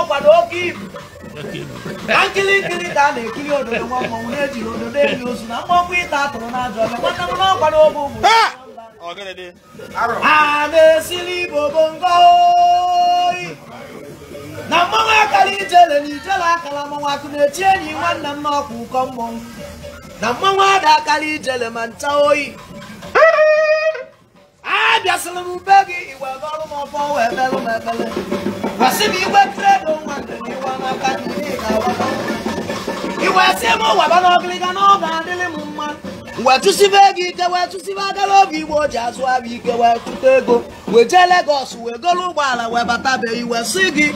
ọkwa na oke ibu nkiri nkiri ka a na-ekiri ododo nwa mmọnwụ na-ejiri ododo eli ozu na mmọnwụ ịta atụrụ na ajọ ọbịa nwanne m n'ọkwa na ogbe ụmụ a na-esiri igbo bongo na mmanwụ akara ijele na ijele akara mmanwụ akụ na-eti enyi nwanne m n'ọkwa ụkọ mmọnwụ na mmanwụ ada akara ijele ma ncha oyi abịasịrị m be gị iwe ọrụ m ọbọ wee belụ m ebele gwasị m igwe kredo nwa iwe n'aka iwe si m waba n'ọgịrịga n'oge adịrị m mma wee tụsibe gị ike wee tụsibe agara oge igbo ji azụ abịa ike wee tụta ego wee jee legos wee goro ụgbọala wee batabe iwe si gị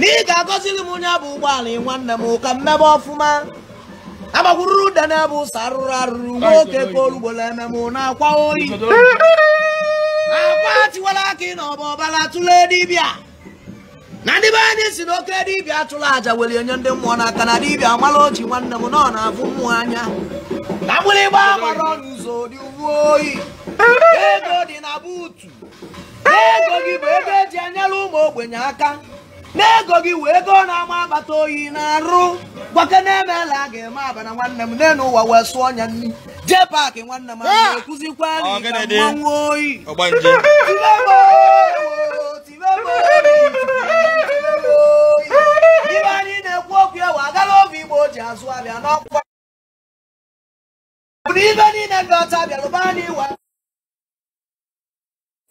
na ị ga m onye bụ ụgbọala nwanne m ka m mebe ọfụma agbagwururu ude na-ebe arụrụ arụrụ nwoke ka olugbo na-eme na-akwa oyi akwa tiwara aka ị n'ọba ọbara tụle dibịa na ndị be anyị si n'oke dibịa tụrụ aja were enye ndị mmụọ n'aka na dibịa mara oji nwanne m nọ na-afụ mmụọ anya na mgbịrịgba gbara n'ụzọ dị uwe oyi ego dị na buutu ego gị bụ ego eji anyara ụmụ ogbenye aka n'ego gị wee ego na-ama akpata oyi na-arụ gwake na-emela aga eme abana nwanne m n'elu ụwa wee sụọ ọnya nri jee paakị nwanne m ahụ ekụzikwa mmanwụ oyi ibe anyị na-ekwu okwu ewe agala obi igbo ji azụ abịa n'ọkwa bụ ibe niile ndị ọcha bịarụba anyị iwe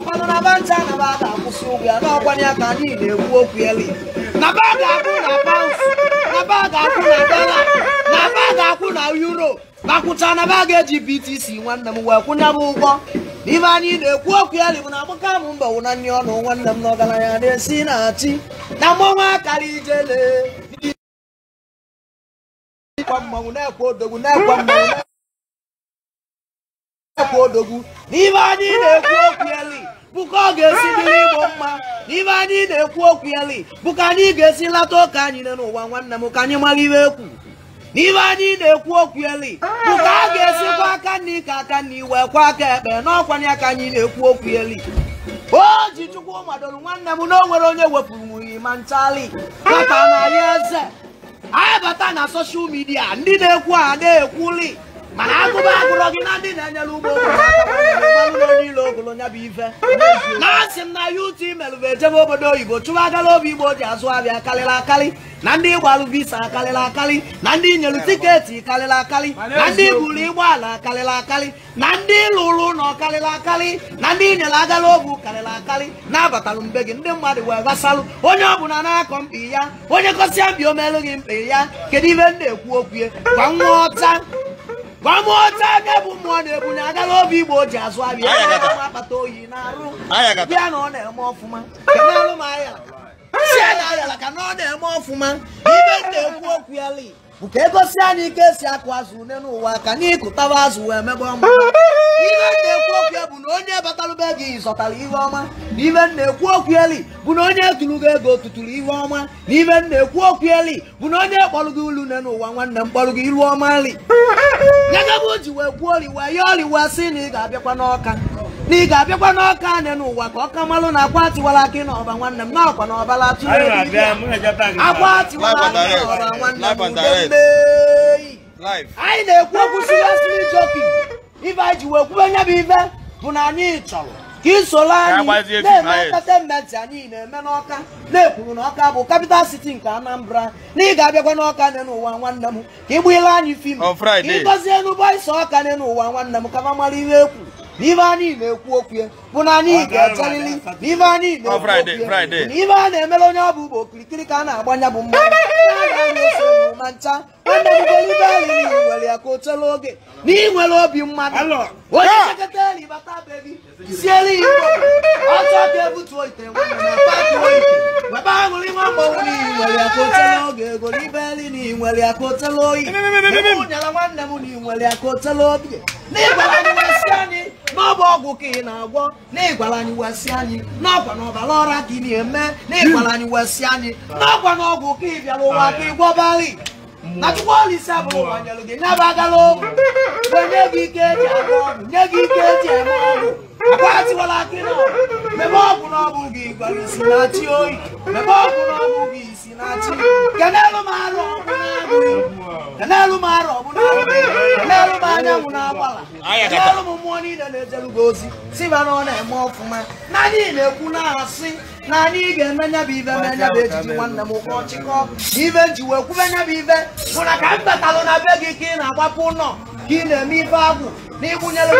mmanụ na banta na ba ga-akwụ ugwu ya n'ọkwanye ya na-ekwu okwu eli na ga-akwụ na paụns na ba ga-akwụ na dọla na ba ga-akwụ na euro ma na ba eji btc nwanne m wee kwụnye m ụgwọ n'ime anyị na-ekwu okwu eli bụ na agbaka m na ọnụ nwanne m na ọgaranya na-esi na na akara ijele anyị na-ekwu okwu eli bụ ka ọ ga-esi dịrị igbo mma n'ibe anyị na-ekwu okwu yali bụ ka anyị ga-esi lata ụka anyị nọ n'ụwa nwanne m ka anyị mara iwe ekwu n'ibe anyị na-ekwu okwu eli bụ ka a ga kwa aka nri ka aka na iwe kwa aka ekpe n'ọkwanye aka anyị na-ekwu okwu eli o ji chukwu madoro nwanne m na o nwere onye wepụrụ nwunye ma nchali bata na ya eze anyị bata na soshal midia ndị na-ekwu a na-ekwuli mana agụba agụrọ gị na ndị na-enyere ụgbọ niile ogolo nya bụ ife na-asị m na ya ụtụ imelụbụ ejebe obodo oyibo chụwa agala obi igbo ji azụ abịa karịrị akarị na ndị ịgbalụ visa akarịrị akarị na ndị nyelu tiketi karịrị akarị na ndị buru ụgbọala karịrị akarị na ndị lụrụ ụlọ karịrị akarị na ndị nyere agala obu karịrị akarị na-abatalụ mbe gị ndị mmadụ wee gbasalụ onye ọbụla na-akọ mkpi ya onye kọsịa mbi omelụ gị mkpi ya kedu ibe m na-ekwu okwu kwa nwa ọta gwa m otu aka bụ mmụọ na-ebu na agala obi igbo ji azụ abịa akpata oyi na-arụ bịa na ọ na-eme ọfụma alụ m ahịa si a na-ayala ka na ọ na-eme ọfụma ibe na-ekwu okwu ya li bụ ka egosi anyị ike esi akụ azụ ne n'ụwa ka n'ịkụtaba azụ wee mebe ọma ibe na-ekwu okwu ya bụ na onye batalụ be gị zọtara ihe ọma na ibe na-ekwu okwu bụ na onye tụrụ gị ego tụtụrụ ihe ọma na ibe na-ekwu okwu bụ na onye kpọrọ gị ulu ne n'ụwa nwanne m kpọrọ gị ilu ọma nyegebe o ji wee kwuo oriwa ya oriwa si na ị ga-abịakwa n'ọka na ị ga-abịakwa n'ọka anị n'ụwa ka ọka malụ na akwa atịwala aka n'ọba nwanne m n'ọkwa na ọbala atụrụ akwa atịwala aka n'ọba nwanne m mgbe anyị na-ekwu okwu siri asịrị jokin anyị ji wee kwube nye bụ ibe bụ na anyị chọrọ ka ị soro anyị na-eme entertainment anyị na-eme n'ọka na-ekwuru na ọka bụ kapital siti nke anambra na ị ga-abịakwa n'ọka nne n'ụwa nwanne m ka ị anyị fim ka ị gọzie n'ụgbọ ịsọ ọka nne n'ụwa nwanne m ka ma mara ihe ekwu na ibe anyị na-ekwu okwu bụ na anyị ga-echerịrị na ibe anyị na-ekwu okwu na ibe a na-emere onye ọ bụ ụba okirikiri ka a na-agbanya bụ mmanụ ma ncha nwanne m golibe anyị nwere ya ka o chere oge na nwere obi mmadụ onye chekata ah! bata bebi siere igbo ọtọ ka ebutuo ite webe aṅụrị nwa mgbanwe na ị nwere aka otela oge ego n'ibe nri na ị nwere aka otela oyi nyere nwanne m na ị nwere aka otela obi n'ịgwara anyị wesị anyị n'ọbụ ọgwụ ka ị na-agwọ n'ịgwara anyị wesị anyị n'ọkwa na ọbara ọra gị na-eme n'ịgwara anyị wesị anyị n'ọkwa na ọgwụ ka ị bịara ụwa ka ị gwọbari na chukwu olise abụrụ gbanyelụ gị nyabagala ụmụ nye gị ike eji agụ ọnụ nye gị ike eji eme ọgwụ akwatiwala akị na mebe ọgwụ n'ọgwụ gị gwara isi na chi oyi mebe ọgwụ n'ọgwụ gị isi na chi kenelụ m arụ ọgwụ na-abụghị kenelụ m arụ ọgwụ na-abụghị kenelụ m anyanwụ na-agbala kenelụ m mmụọ niile na gị ozi si ba na ọ na-eme ọfụma na anyị na-ekwu na-asị na ị ga-eme nya bụ ive mee nya bụ ejiji nwanne m ụkọ chịkọ ive ji wee kwube bụ ive bụ na ka m batalụ na be gị ka ị na-agbapụ ụlọ ka ị na-eme ife agwụ na ịgbụnyere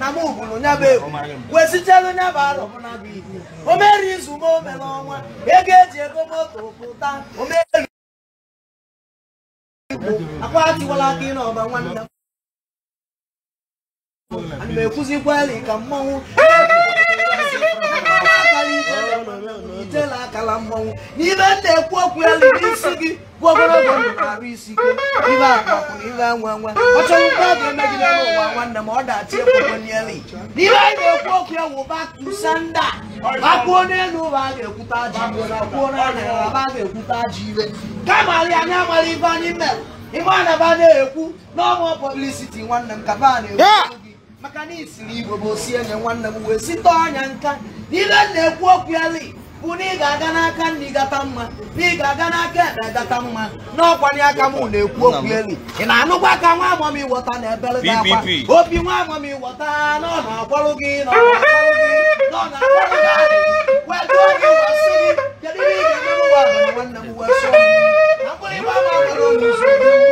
na m ugwuru nya bụ egwu kwesịchara nya bụ alụ o mere izu m o mere ọnwa ego eji ego moto pụta o mere akwa atịwala aka ị n'ọba nwanne m ana m ekwuzikwa ya ka mmanwụ itela akala mmanwụ n'ibe m na-ekwu okwu ya n'isi gị bụ ogologo ndụ arụ isi ike ibe akpakwụrụ ibe anwa nwa ọ chọrọ ọ ga-eme gị n'ime ụwa nwanne m ọ dachi ekwukwe n'elu n'ibe anyị na-ekwu okwu ya wụba tusanda akpụọ n'elu ụba a ga-ekwute n'ala a ga-ekwute anyị ibe anyị mere na-ekwu n'ọnwa pọblisiti nwanne m kaba na-ekwu maka na isiri igbo bụ osi enye nwanne m wee site ọnya nka n'ihe na-ekwu okwu eli bụ na ị ga-aga n'aka nna ịgata mma na ị ga-aga n'aka ekpe e gata mma n'ọkwanye aka m na-ekwu okwu eli ị na-anụkwa aka nwa amam ịwọta na ebeleta akwa obi nwa amam ịwọta na ọ na-akwarụ gị na ọ na-akwarụ gị wetụọ gị wasị gị kedu ihe ị ga-eme nwanne m wee sụọ mkpụrụ ịgba ama nwere onye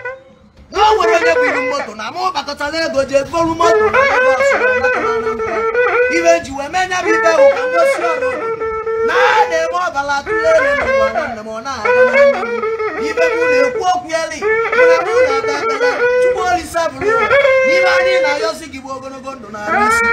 na o nwere onye buru moto na mụ gbakọtala ego ji eburu moto ibe ji wee menya nyabụ ibe bụ ka mgosi ọrụ na a na-eme ọbara atụle n'ụwa na nna m ọ na-aga ibe m na-ekwu okwu eli na mụ na ada ekpere chukwu olisa bụrụ n'ime anyị na-ayọsi gị bụ ogologo ndụ na-arụ isi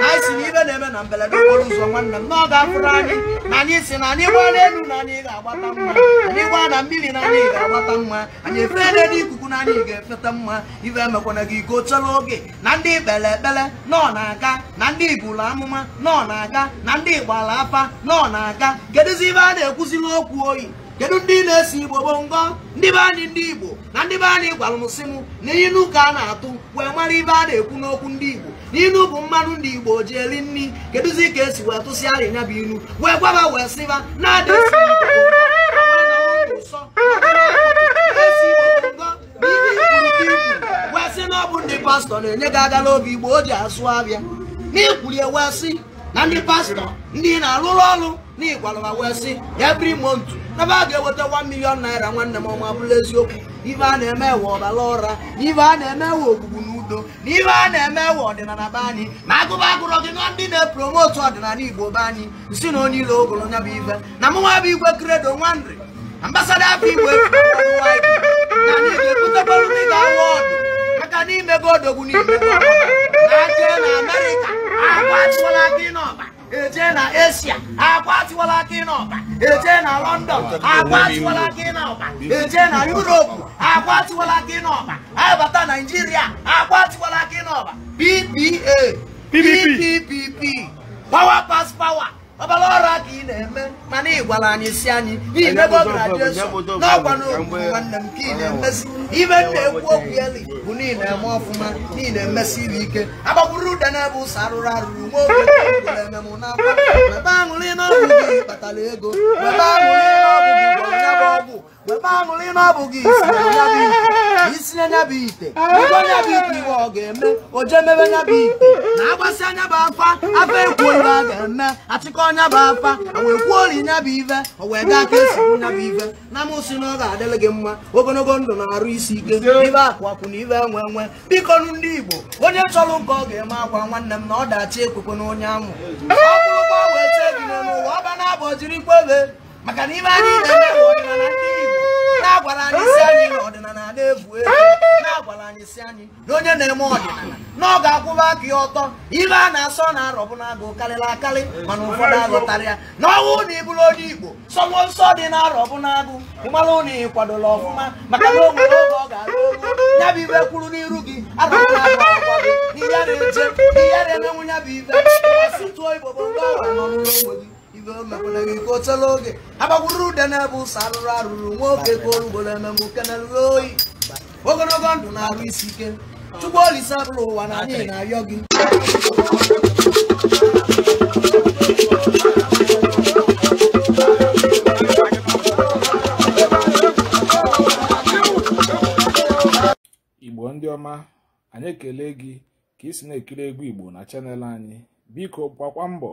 na anyị na ibe na-eme na mberede okporo ụzọ nwanne m na ọ ga anyị na anyị si na anyị gbaa n'elu na anyị ga-agbata mma anyị gbaa na mmiri na anyị ga-agbata mma anyị efeela n'ikuku na ị ga-efeta mma ife emekwana gị iko chọrọ oge na ndị ikpere ekpere nọ na-aga na ndị ibulu amụma nọ na-aga na ndị gbara afa nọ na-aga kedụzi ibe a na-ekwuziri okwu oyi kedu ndị na-esi igbo bụ ngọ ndị be anyị ndị igbo na ndị be anyị gwara m sị m na inu ka a na-atụ wee mara ibe a na-ekwu n'okwu ndị igbo n'inu bụ mmanụ ndị igbo ji eri nri kedụzi ka esi wee tụsịa arịnya bụ inu wee gwaba wee sịba na-adịsi ọ bụ ndị pastọ na-enye gị agala obi igbo o ji asụ abịa n'ikwulie ewe sị na ndị pastọ ndị na-alụrụ ọrụ n'ịkwalụwa wee sị every month n'ebe a ga-eweta 1 million naira nwanne m ọma bụrụ eziokwu ibe a na-eme ewe ọbara ụra na a na-eme ewe ogbugbu na udo na ibe a na-eme ewe ọdịnala be anyị ma agụba agụrọ gị na ndị na-epromotu ọdịnala igbo be anyị Si na onye ile ogolo nya bụ ibe. na mụnwa bụ igwe kredo nwandri ambasada afọ igbo na anyị ga ndị ga ọdụ aka n'ime gị odogwu n'ime na-aka na amerịka akwatụwala aka n'ọba eje na asia akwatụwala aka n'ọba eje na london akwatụwala aka n'ọba eje na yuropu akwatụwala aka n'ọba abata naijiria akwatụwala aka n'ọba ppa ppp power pass power ọbara ọrụ ka ị na-eme mana ị gwara anyị si anyị n'imebe na n'ọgwa n'okwu nwanne m ka ị na-emesi ime na-ekwu okwu eli bụ na ị na-eme ọfụma na ị na-emesi iri ike agbagburu ụda n'ebe ebe ụsọ arụrụ arụrụ nwa oge na-eme m n'akwa ebe aṅụrị n'ọrụ gị kpatara ego ebe aṅụrị webe aṅụrị na ọ bụghị isi nyabụ ite ụgwọ nyabụ ite iwe ọ ga-eme oje mebe nyaba ite na agbasi nyabụ afa afa ekwu ibe a ga-eme achịkọ nyabụ afa wee kwuo ori nyabụ ive o wee gaa ka esigbu nyabụ ive na mụsị na ọ ga-adịrị gị mma ogologo ndụ na-arụ isi ike ibe akụ akwụ na ibe enwe enwe biko nụ ndị Igbo onye chọrọ nke ọ ga-eme akwa nwanne m na ọ dachi ekwekwe na onye amụ ọ bụrụkwa wee chee gị n'elu ụwa ọ ba jirikwa ebe maka na ime anyị na-eme bụ ọdịnala ndị Igbo na-agwara anyị si anyị na ọdịnala na-efu ebu na-agwara anyị si anyị na onye na-eme ọdịnala na ọ ga-akwụba aka ya ọtọ ibe a na-asọ na arọbụ na agụ karịrị akarị mana ụfọdụ azụtara ya na ọnwụ na ịbụrụ onye Igbo sọnwụ nsọ dị na arọbụ na agụ ịmalụ na ị kwadola ọfụma maka na o oge ọ ga-arụ oru ya bụ ibe kwuru n'iru gị arọbụ na agụ akwọ gị na-eje na-emenwu ya bụ ibe gị gị ka o tela oge ha gbagburu ude na-ebe ụsọ arụrụ arụrụ nwoke ka orugbo na-ememe uke na ruru oyi ogologo ndụ na-arụ isi ike chukwu olise abụrụ ụwa na anyị na-arịọ gị igbo ndị ọma anyị ekele gị ka ị si na-ekiri egwu igbo na chanel anyị biko gbakwa mbọ